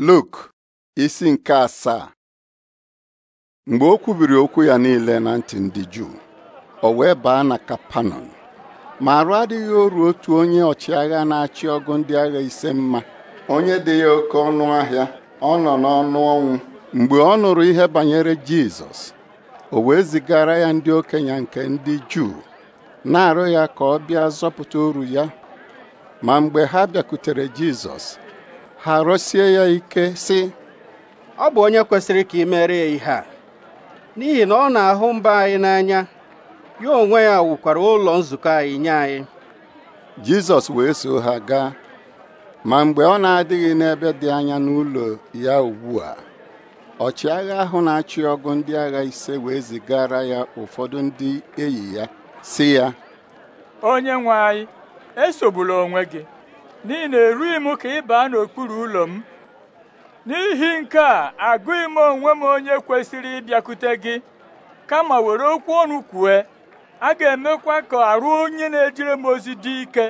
Luk isi nke asaa mgbe o kwubiri okwu ya niile na ntị ndị Juu o wee baa na Kapanọm ma arụ adịghị oru otu onye ọchịagha na-achị ọgụ ndị agha ise mma onye dị ya oke ọnụ ahịa ọ nọ n'ọnụ ọnwụ mgbe ọ nụrụ ihe banyere Jizọs o wee zigara ya ndị okenye nke ndị Juu na-arụ ya ka ọ bịa zọpụta oru ya ma mgbe ha bịakutere Jizọs ha rọsie ya ike sị ọ bụ onye kwesịrị ka ị mere ya ihe a n'ihi na ọ na-ahụ mba anyị n'anya ya onwe ya wukwara ụlọ nzukọ anyị nye anyị Jizọs wee so ha gaa ma mgbe ọ na-adịghị n'ebe dị anya n'ụlọ ya ugbu a ọchịagha ahụ na-achị ọgụ ndị agha ise wee zigara ya ụfọdụ ndị enyi ya sị ya onye nwe anyị esogbula onwe gị n'ihi na erughị m ka ị baa n'okpuru ụlọ m n'ihi nke a agụghị m onwe m onye kwesịrị ịbịakwute gị kama were okwu ọnụ kwue a ga-emekwa ka arụ onye na-ejere m ozi dị ike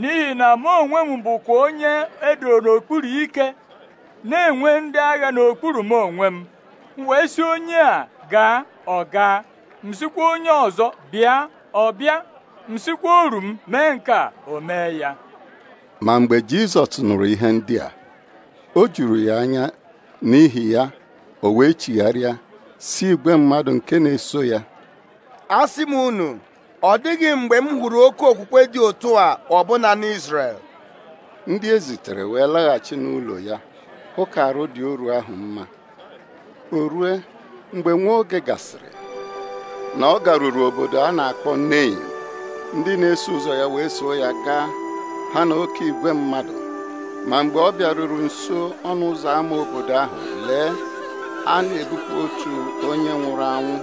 n'ihi na mụ onwe m bụkwa onye edo n'okpuru ike na-enwe ndị agha n'okpuru m onwe m wee sị onye a gaa ọ gaa onye ọzọ bịa ọ bịa m oru m mee nke a o mee ya ma mgbe jizọs nụrụ ihe ndị a o juru ya anya n'ihi ya o wee chigharịa si igwe mmadụ nke na-eso ya asị m unu ọ dịghị mgbe m hụrụ oke okwukwe dị otu a na n'Izrel ndị ezitere wee laghachi n'ụlọ ya hụ ka arụ dị oru ahụ mma o rue mgbe nwa oge gasịrị na ọ garuru obodo a na-akpọ Nein ndị na-eso ụzọ ya wee soo ya gaa ha na oke igwe mmadụ ma mgbe ọ bịaruru nso ọnụ ụzọ ámá obodo ahụ lee a na-ebupụ otu onye nwụrụ anwụ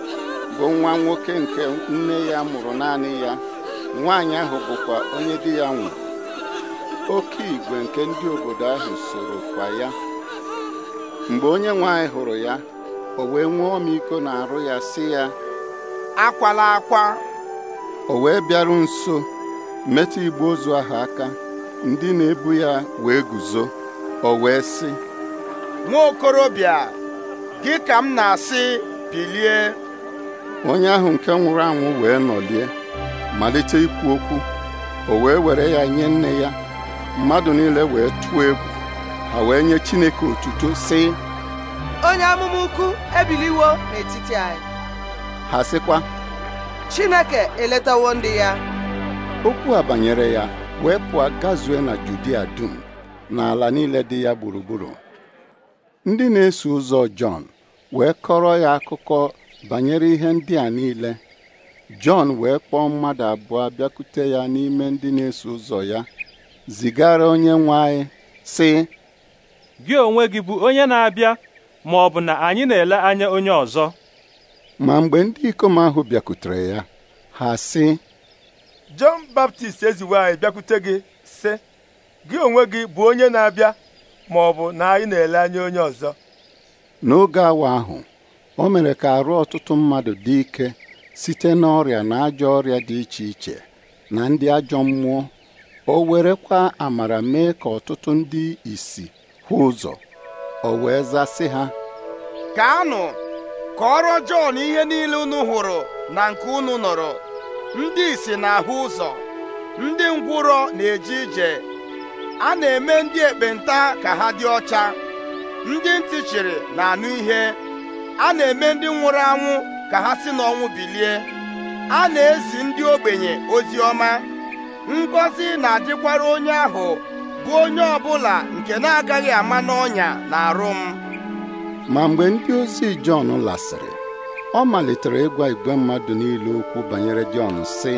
bụ nwa nwoke nke nne ya mụrụ naanị ya nwaanyị ahụ bụkwa onye di ya nwụrụ oke igwe nke ndị obodo ahụ soro kwa ya mgbe onye nwaanyị hụrụ ya o wee nwee ọmịiko na-arụ ya sị ya akwala akwa o wee bịaru nso metụ igbe ozu ahụ aka ndị na-ebu ya wee guzo o wee sị nwa okorobịa gị ka m na-asị bilie onye ahụ nke nwụrụ anwụ wee nọlie malite ikwu okwu o wee were ya nye nne ya mmadụ niile wee tụọ egwu ha wee nye Chineke otuto sị onye amụma ukwu ebiliwo n'etiti anyị ha sịkwa Chineke eletawo ndị ya okwu a banyere ya wee pụọ gazue na Judia dum na niile dị ya gburugburu ndị na-eso ụzọ Jọn wee kọrọ ya akụkọ banyere ihe ndị a niile Jọn wee kpọọ mmadụ abụọ bịakute ya n'ime ndị na-eso ụzọ ya zigara onye nwe anyị sị gị onwe gị bụ onye na-abịa ma ọ bụ na anyị na-ele anya onye ọzọ ma mgbe ndị ikom ahụ bịakutere ya ha si Jọn Baptist eziwe anyị bịakwute gị sị gị onwe gị bụ onye na-abịa ma ọ bụ na anyị na-ele anya onye ọzọ n'oge awa ahụ o mere ka arụ ọtụtụ mmadụ dị ike site n'ọrịa na ajọ ọrịa dị iche iche na ndị ajọ mmụọ o werekwa amara mee ka ọtụtụ ndị isi hụ ụzọ o wee zasị ha ka ọrụ Jọn ihe niile unu hụrụ na nke unu nọrọ ndị isi na-ahụ ụzọ ndị ngwụrọ na-eje ije a na-eme ndị ekpenta ka ha dị ọcha ndị ntị chịrị na-anụ ihe a na-eme ndị nwụrụ anwụ ka ha si n'ọnwụ bilie a na-ezi ndị ogbenye ozi ọma ngọzi na-adịkwara onye ahụ bụ onye ọbụla nke na-agaghị ama n'ọnya na arụ m ma mgbe ndị ozi Jọn lasịrị ọ malitere ịgwa igwe mmadụ niile okwu banyere Jọn sị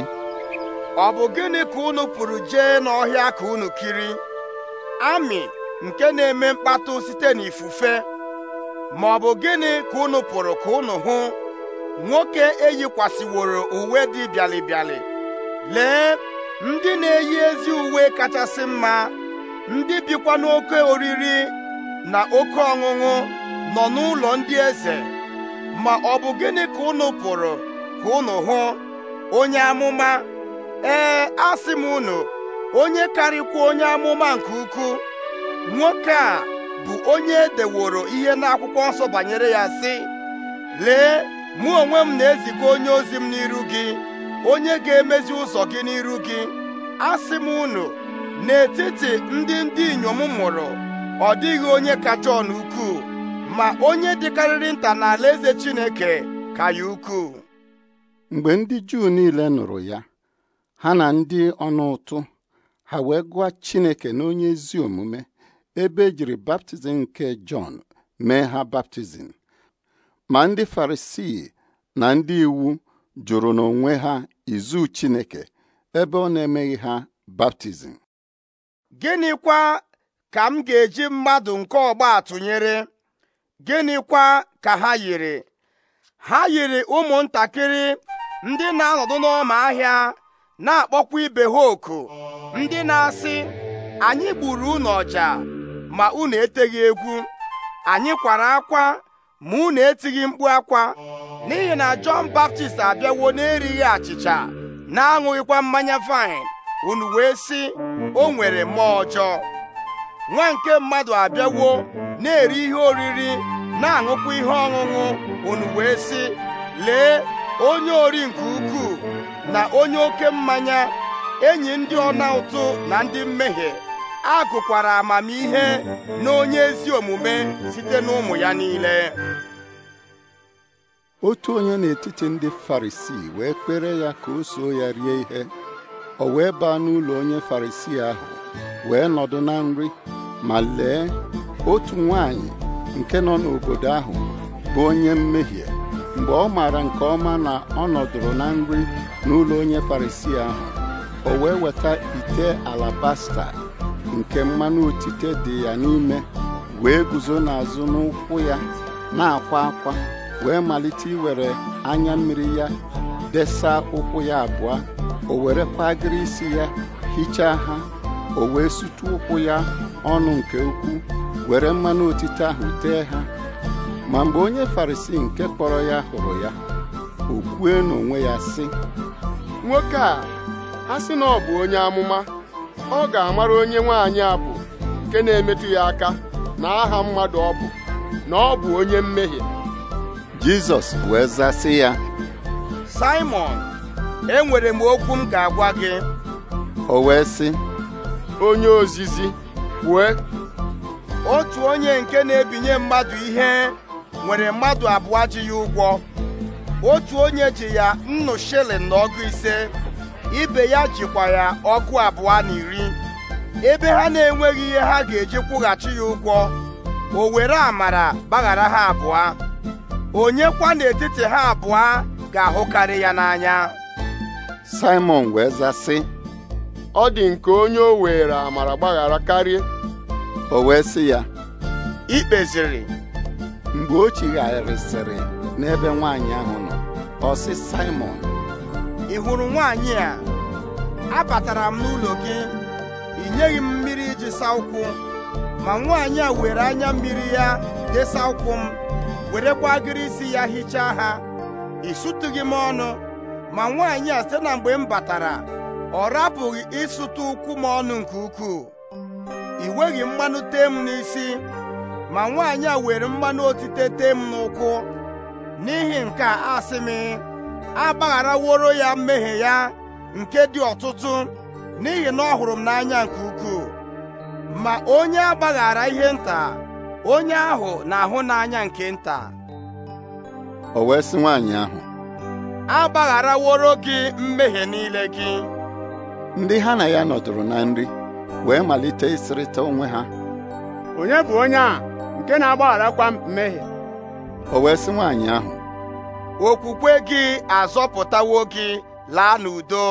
ọ bụ gịnị ka unu pụrụ jee n'ọhịa ka unu kiri amị nke na-eme mkpatụ site n'ifufe ma ọ bụ gịnị ka unu pụrụ ka unu hụ nwoke eyikwasịworo uwe dị bịalịbịalị lee ndị na-eyi ezi uwe kachasị mma ndị bikwa n'oke oriri na oke ọṅụṅụ nọ n'ụlọ ndị eze ma ọ bụ gịnị ka unu pụrụ ka unu hụ onye amụma ee asị m unu onye karịkwa onye amụma nke ukwuu nwoke a bụ onye edeworo ihe n'akwụkwọ nsọ banyere ya sị lee mụ onwe m na-eziga onye ozi m n'iru gị onye ga-emezi ụzọ gị n'iru gị asị m unu n'etiti ndị ndị inyom mụrụ ọ dịghị onye kacha Jọn ukwuu ma onye dịkarịrị nta n'ala eze Chineke ka ya ukwuu mgbe ndị Juu niile nụrụ ya ha na ndị ọnụ ụtụ ha wee gụọ Chineke na onye ezi omume ebe ejiri baptizim nke Jọn mee ha baptizim ma ndị Farisii na ndị iwu jụrụ n'onwe ha izu Chineke ebe ọ na-emeghị ha baptizim gịnịkwa ka m ga-eji mmadụ nke ọgba tụnyere gịnịkwa ka ha yiri ha yiri ụmụntakịrị ndị na-anọdụ n'ọma ahịa na-akpọkwa ibe ha oku ndị na-asị anyị gburu unu ọja ma unu eteghị egwu anyị kwara akwa ma unu etighị mkpu akwa n'ihi na Jọn Baptist abịawo na-erighị achịcha na-aṅụghịkwa mmanya vaịn unu wee sị o nwere mmụọ ọjọọ nwa nke mmadụ abịawo na-eri ihe oriri na-aṅụkwa ihe ọṅụṅụ unu wee lee onye ori nke ukwuu na onye oke mmanya enyi ndị ọna ụtụ na ndị mmehie agụkwara amamihe na onye ezi omume site n'ụmụ ya niile otu onye n'etiti ndị farisii wee kpere ya ka o soo ya rie ihe o wee baa n'ụlọ onye farisii ahụ wee nọdụ na nri ma lee otu nwanyị nke nọ n'obodo ahụ bụ onye mmehie mgbe ọ maara nke ọma na ọ nọdụrụ na nri n'ụlọ onye Farisi ahụ o wee weta ite alabasta nke mmanụ otite dị ya n'ime wee guzo n'azụ n'ụkwụ ya na-akwa akwa wee malite iwere anya mmiri ya desa ụkwụ ya abụọ o were kwa-agịrị isi ya hichaa ha o wee sutu ụkwụ ya ọnụ nke ukwuu were mmanụ otite ahụ tee ha ma mgbe onye farisi nke kpọrọ ya hụrụ ya o kwue n'onwe ya sị nwoke a a sị na ọ bụ onye amụma ọ ga-amara onye nwaanyị a bụ nke na-emetụ ya aka na aha mmadụ ọ bụ na ọ bụ onye mmehie Jizọs wee zasị ya Simon enwere m okwu m ga-agwa gị o wee sị onye ozizi kwue otu onye nke na-ebinye mmadụ ihe nwere mmadụ abụọ ji ya ụgwọ otu onye ji ya nnu shilling na ọgụ ise ibe ya jikwa ya ọgụ abụọ na iri ebe ha na-enweghị ihe ha ga-eji kwụghachi ya ụgwọ o were amara gbaghara ha abụọ Onyekwa kwa n'etiti ha abụọ ga-ahụkarị ya n'anya Simon wee zaa ọ dị nke onye o were amara gbaghara karịa o wee sị ya ikpeziri mgbe o chigharịsịrị n'ebe nwaanyị ahụ nọ ọ sị Simon ị hụrụ nwaanyị a abatara m n'ụlọ gị ị nyeghị m mmiri iji saa ụkwụ ma nwaanyị a were anya mmiri ya desa ụkwụ m werekwa agịrị isi ya hichaa ha ị sụtụghị m ọnụ ma nwaanyị a site na mgbe m batara ọ rapụghị ịsụta ụkwụ ma ọnụ nke ukwuu ị nweghị mmanụ tee n'isi ma nwaanyị a were mmanụ otite tee m n'ụkwụ n'ihi nke a asị m agbagharaworo ya mmehie ya nke dị ọtụtụ n'ihi na ọ hụrụ m n'anya nke ukwuu ma onye agbaghara ihe nta onye ahụ na-ahụ n'anya nke nta o wee sị nwaanyị ahụ agbagharaworo gị mmehie niile gị ndị ha na ya nọdụrụ na nri wee malite ịsịrịta onwe ha onye bụ onye a nke na-agbagharakwa mmehie o wee sị nwaanyị ahụ okwukwe gị azọpụtawo gị laa n'udo